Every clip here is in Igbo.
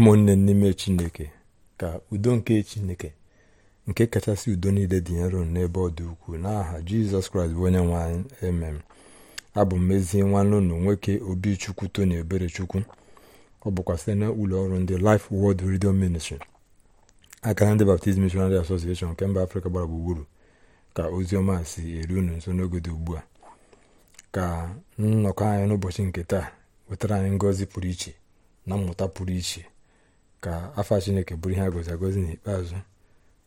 ụmụnne n'ime chineke ka udo nke chineke nke kachasị udo niile dị nro n'ebe ọ dị ukwuu n'aha jizọs kraịst bụ onye nwe anyị emem abụ mmezie nwanne ụnụ nwoke obi chukwu tony obere chukwu ọ bụkwa site na ụlọ ọrụ ndị Life Word Radio ministri akara ndị Baptist Missionary Association nke mba afrịka gbara gburugburu ka ozi ọma si eru unu nso n'oge dị ugbu a ka nnọkọ anyị n'ụbọchị nke taa wetara anyị ngọzi pụrụ iche na mmụta pụrụ iche ka afa chineke bụrụ ihe a gozi agozi n'ikpeazụ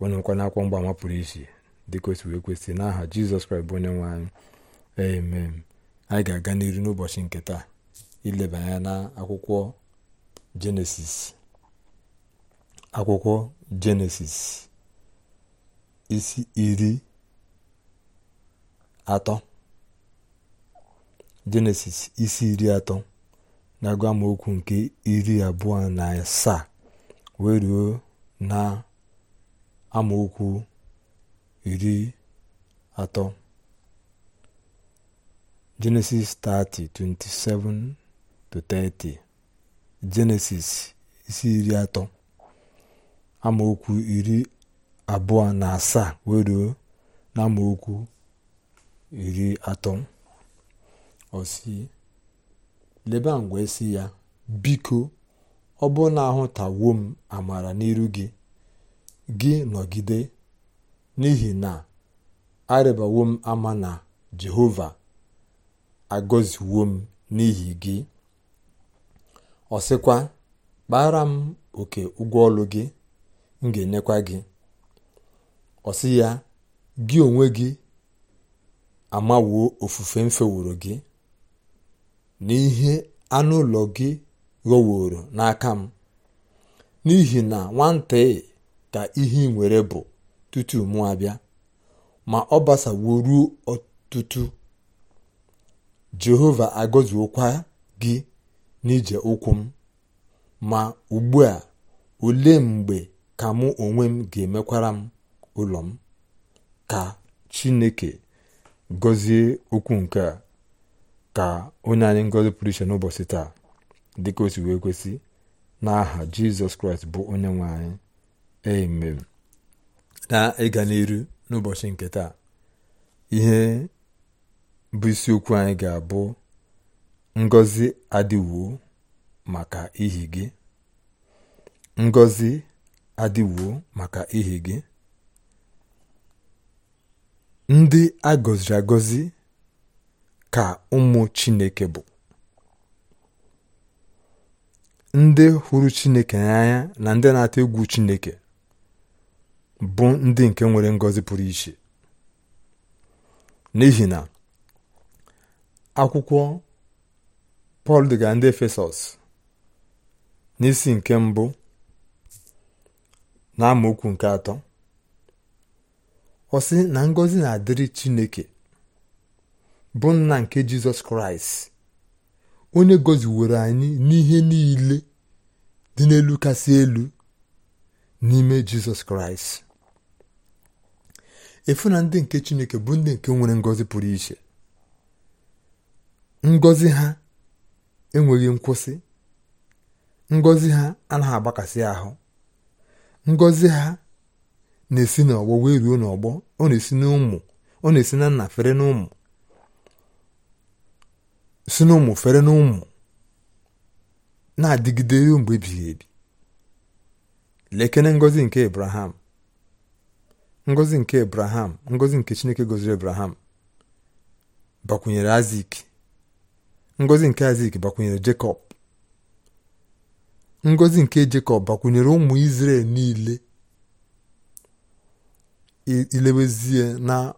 wenụkwa mgba mgbaama pụrụ iche dịka otu wee kwesị n'aha jizọs kraịst bụ onye nwe anyị amen anyị ga-aga n'iru n'ụbọchị nke taa ileba anya na akwụkwọ jenesis akwụkwọ jenesis isi iri atọ jenesis isi iri atọ na-agụ amaokwu nke iri abụọ na asaa wee ruo na amaokwu iri atọ genesis 30:27 to 30 genesis isi iri atọ amaokwu iri abụọ na asaa wee ruo na amaokwu iri atọ ọsi leba ngwa esi ya biko ọ bụ na ahụtawo m amara n'iru gị gị nọgide n'ihi na arịbawo m ama na jehova agọziwo m n'ihi gị ọ sịkwa kpara m oke ụgwọ ọlụ gị m ga-enyekwa gị ọ ya gị onwe gị amawuo ofufe m feworo gị n'ihe anụ ụlọ gị ghọworo n'aka m n'ihi na nwata ka ihe nwere bụ tutu mụ abịa ma ọ basawo ọtụtụ jehova agọziokwa gị n'ije ụkwụ m ma ugbu a olee mgbe ka mụ onwe m ga-emekwara m ụlọ m ka chineke gọzie okwu nke a ka onye anyị ngọzi pụrụ iche n'ụbọchị taa dịka o si wee kwesị n'aha jizọs kraịst bụ onye nwe anyị amen na ịga n'iru n'ụbọchị nke taa ihe bụ isiokwu anyị ga-abụ ngozi adịwuo maka ihi gị ngozi adịwuo maka ihi gị ndị agọziri agọzi ka ụmụ chineke bụ ndị hụrụ chineke n'anya na ndị na-atụ egwu chineke bụ ndị nke nwere ngọzi pụrụ iche n'ihi na akwụkwọ pọl dịga ndị efesọs n'isi nke mbụ na amaokwu nke atọ ọ sị na ngọzi na-adịrị chineke bụ nna nke jizọs kraịst onye gọziwere anyị n'ihe niile dị n'elu kasị elu n'ime jizọs kraịst efu na ndị nke chineke bụ ndị nke nwere ngọzi pụrụ iche Ngozi ha enweghị nkwụsị Ngozi ha anaghị agbakasị ahụ ngọzi ha na-esi n'ọgbọ wee ruo n'ọgbọ ọ na-esi n'ụmụ ọ na-esi na nna fere n'ụmụ si n'ụmụ fere n'ụmụ na-adịgide ruo mgbe ebighị ebi lekene ngọzi nke Ibrahim, ngọzi nke Ibrahim, ngọzi nke Chineke gọziri Ibrahim bakwunyere Azik ngọzi nke Azik bakwunyere Jekọb ngọzi nke Jekọb bakwunyere ụmụ Izrel niile ilewezie na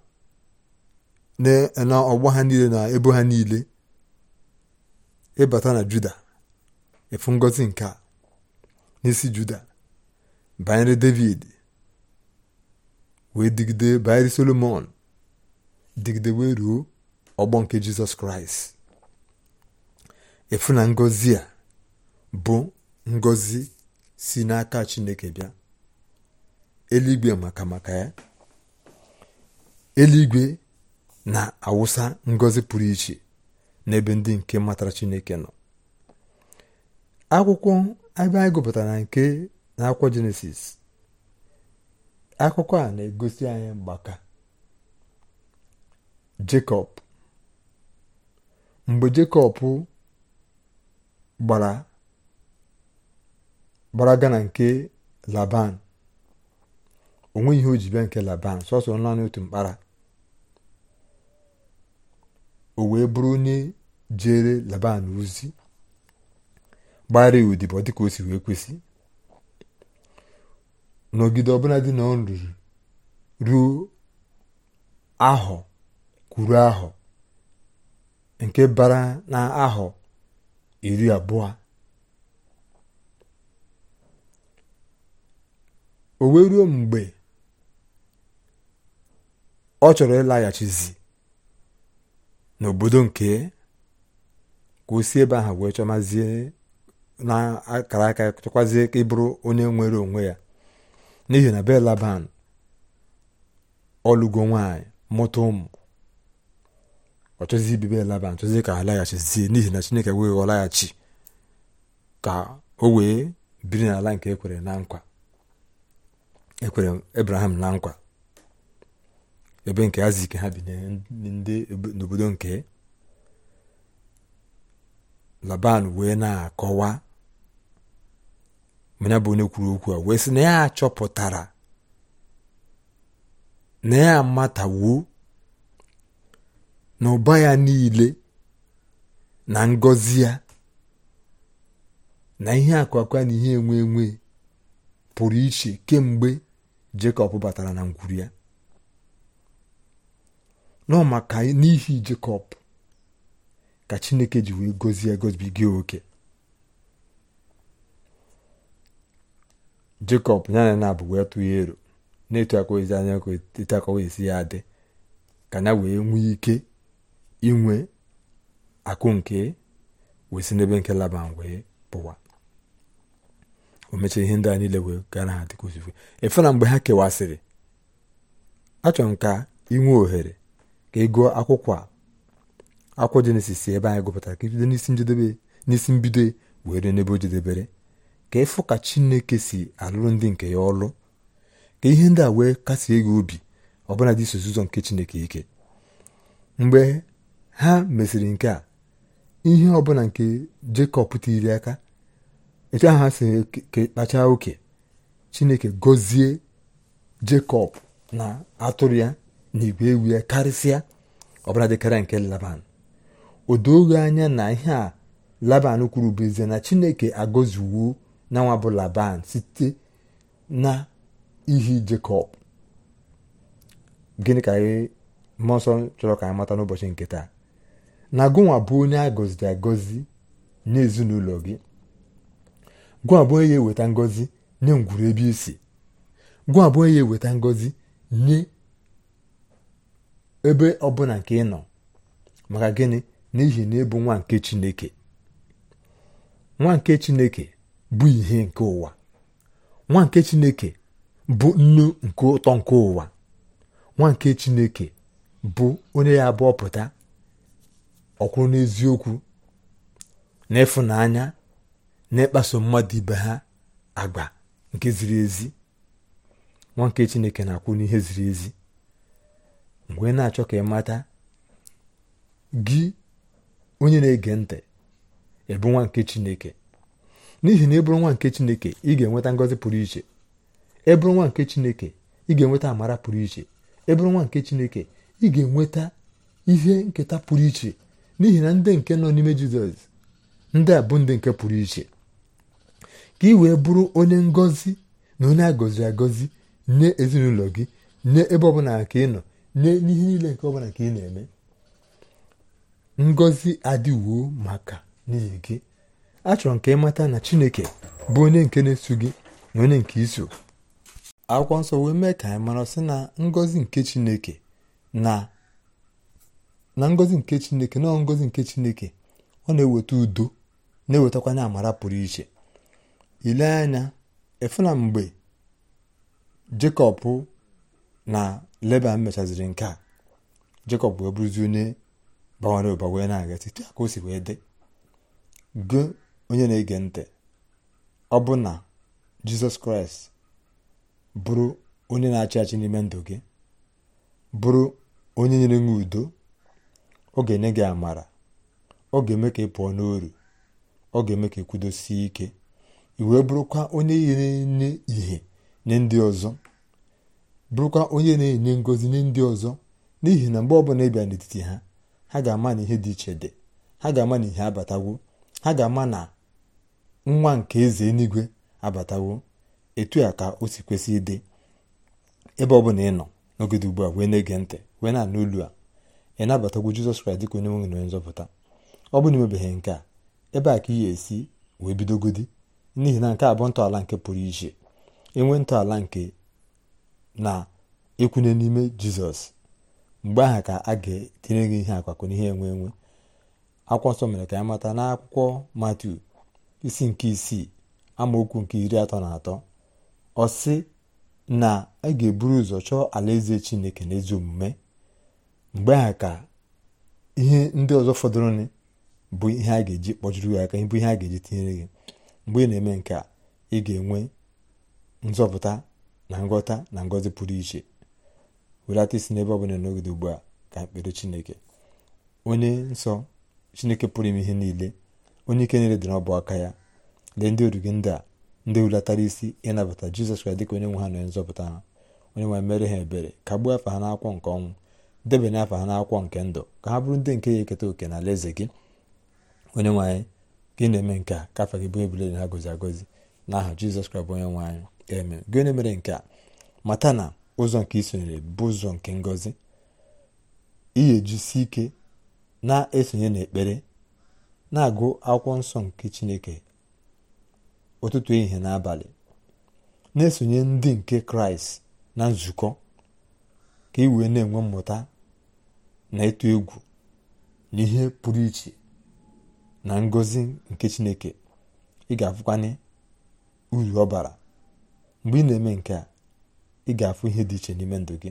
ọgba ha niile na ebo ha niile ịbata na Juda efu ngọzi nke a n'isi juda banyere david wee digide banyere solomon digide wee ruo ọgbọ nke jizọs kraịst efu na ngozi a bụ ngozi si n'aka chineke bịa eluigwe maka maka ya eluigwe na-awụsa ngozi pụrụ iche n'ebe ndị nke matara chineke nọ akwụkwọ ebe anyị gụpụtara nke n'akwụkwọ jenesis akụkọ a na-egosi anyị mgbaka jekọb mgbe jekọb gbara gbaraga na nke laban onweghị ihe o ji bịa nke laban sọsọ naanị otu mkpara o wee bụrụ onye jere laban ozi gbara odibo dịka o si wee kwesị nọgide ọbụla dị na ọ ruo ahọ kwuru ahọ nke bara na ahọ iri abụọ o wee ruo mgbe ọ chọrọ ịlaghachizi n'obodo nke ka o si ebe ahụ wee chọmazie na-akara aka chọkwazie ka onye nwere onwe ya n'ihi na belaban laban ọlụgo nwanyị mụta ụmụ ọ belaban laban ka ha zie n'ihi na chineke wee ghọ ka o wee biri n'ala nke ekwere na ekwere ebraham na nkwa ebe nke aziki ha bi n'obodo nke laban wee na-akọwa ma ya bụ onye kwuru okwu a wee sị na ya achọpụtara na ya amatawo na ụba ya niile na ngọzi ya na ihe akwakwa na ihe enwe enwe pụrụ iche kemgbe jekọb batara na ngwuru ya nọ maka n'ihi jekọb ka chineke ji wee gọzie gozibiga oke jekọb ya na na abụ wee tụọ ero na-etu akọwezi anya etu akọwezi ya adị ka ya wee nwee ike inwe akụ nke wee si n'ebe nke laban wee pụwa o ihe ndị a niile wee gaa na ha dịka efe na mgbe ha kewasịrị achọrọ m ka inwe ohere ka ego akwụkwọ a akwụkwọ jenesis ebe anyị gụpụtara ka ị n'isi njedebe n'isi mbido were n'ebe o jedebere ka ịfụ ka Chineke si alụrụ ndị nke ya ọlụ ka ihe ndị a wee kasie gị obi ọbụla dị nke Chineke ike mgbe ha mesịrị nke a ihe ọbụla nke Jekọb tiri aka etu ahụ ha si kpachaa oke Chineke gọzie Jekọb na atụrụ ya na igwe ewu ya karịsịa ọbụla dịkarịa nke Laban o doghị anya na ihe a Laban kwuru bụ ezie na Chineke agọziwo na nwa bụ laban site na ihi jekọb gịnị ka mmụọ chọrọ ka anyị mata n'ụbọchị nke taa na gụnwa bụ onye a gọziri agọzi n'ezinụlọ gị gụnwa bụ onye eweta ngọzi nye ngwuru ebe isi gụnwa bụ onye eweta ngọzi nye ebe ọbụla nke ị nọ maka gịnị n'ihi na ịbụ nwa nke chineke nwa nke chineke bụ ihe nke ụwa nwa nke chineke bụ nnu nke ụtọ nke ụwa nwa nke chineke bụ onye ya abụọ pụta ọkwụrụ n'eziokwu na ịfụnanya na ịkpaso mmadụ ibe ha agba nke ziri ezi nwa nke chineke na-akwụ n'ihe ziri ezi mgbe na-achọ ka ị mata gị onye na-ege ntị ebe nwa nke chineke n'ihi na ịbụrụ nwa nke chineke ị ga-enweta ngọzi pụrụ iche ebụrụ nwa nke chineke ị ga-enweta amara pụrụ iche ebụrụ nwa nke chineke ị ga-enweta ihe nketa pụrụ iche n'ihi na ndị nke nọ n'ime jizọs ndị a bụ ndị nke pụrụ iche ka ị wee bụrụ onye ngọzi na onye agọzi agọzi nye ezinụlọ gị nye ebe ọbụla ka ị nọ nye n'ihe niile nke ọbụla ka ị na-eme ngọzi adịwo maka n'ihi gị achọrọ nke ka ịmata na chineke bụ onye nke na-eso gị na onye nke iso akwụkwọ nsọ wee mee ka anyị mara sị na ngọzi nke chineke na na ngọzi nke chineke na ngọzi nke chineke ọ na-eweta udo na-ewetakwanye amara pụrụ iche ile anya efuna mgbe jekọb na leba mechaziri nke a jekọb bụ bụrụzi onye bawara ụba wee na-aga site ka dị onye na-ege ntị ọ bụ na jizọs kraịst bụrụ onye na-achị achị n'ime ndụ gị bụrụ onye nyere nwe udo ọ ga-enye gị amara ọ ga-eme ka ị pụọ n'oru ọ ga-eme ka ịkwudosie ike ị wee bụrụkwa onye na-enye ihe nye ndị ọzọ bụrụkwa onye na-enye ngozi nye ndị ọzọ n'ihi na mgbe ọbụla ịbịa n'etiti ha ha ga-ama na ihe dị iche dị ha ga-ama na ihe abatagwo ha ga-ama na nwa nke eze eluigwe abatawo etu a ka o si kwesị ịdị ebe ọ bụla ị nọ n'ogede ugbu a wee na-ege ntị wee na-anụ olu a ị nabatagwo jizọs kraịst dịka onye nwe na onye nzọpụta ọ bụ na imebeghị nke a ebe a ka ihe esi wee bidogodi n'ihi na nke abụọ ntọala nke pụrụ iche enwe ntọala nke na ịkwụnye n'ime jizọs mgbe ahụ ka a ga etinye gị ihe akwakọ n'ihe enwe enwe akwụkwọ nsọ mere ka anyị mata n'akwụkwọ matu isi nke isii amaokwu nke iri atọ na atọ ọ sị na a ga-eburu ụzọ chọọ alaeze chineke na ezi omume mgbe ha ka ihe ndị ọzọ fọdụrụnụ bụ ihe a ga-eji kpọjuru gị aka bụ ihe a ga-eji tinyere gị mgbe ị na-eme nke a ị ga-enwe nzọpụta na nghọta na ngọzi pụrụ iche welata isi n'ebe ọ bụla n'ogede ugbu a ka mkpere chineke onye nsọ chineke pụrụ ime ihe niile onye ike niile dị n'ọbụ aka ya lee ndị oru gị ndị a ndị hulatara isi ịnabata jizọs kraịst dịka onye nwe ha na nzọpụta ha onye nwe mere ha ebere kagbuo afa ha n'akwọ nke ọnwụ debanye afa ha n'akwọ nke ndụ ka ha bụrụ ndị nke ya eketa oke na alaeze gị onye nwe anyị gị na-eme nke a ka afa gị bụ ebule ha gozi agozi n'aha jizọs kraịst bụ onye nwe anyị emere gị onye mere nke a mata na ụzọ nke isonyere bụ ụzọ nke ngozi iyi ejisi ike na-esonye n'ekpere na-agụ akwụkwọ nsọ nke chineke ụtụtụ ehihie n'abalị na-esonye ndị nke kraịst na nzukọ ka ị e wee na-enwe mmụta na ịtụ egwu na ihe pụrụ iche na ngọzi nke chineke ị ga-afụkwanye uru ọ bara mgbe ị na-eme nke a ị ga-afụ ihe dị iche n'ime ndụ gị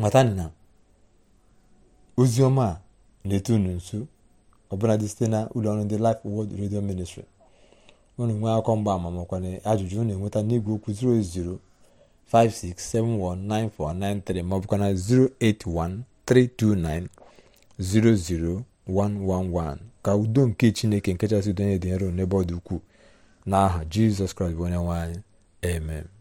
matanị na ozi ọma na-eto unu nso dị site na ụlọ ụlọọrụ ndị Life world Radio Ministry unu nwee akọ mgba ama makwa na ajụjụ unu enweta n'igwe okwu 08056719493 maọbụkwa na 08132900111 ka udo nke Chineke nke chasị donye dị nro n'ebe ọ dị ukwuu n'aha Jizọs Kraịst bụ onye nwanyị